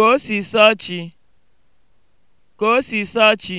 ka o si sọọ chi, ka o si sọọ chi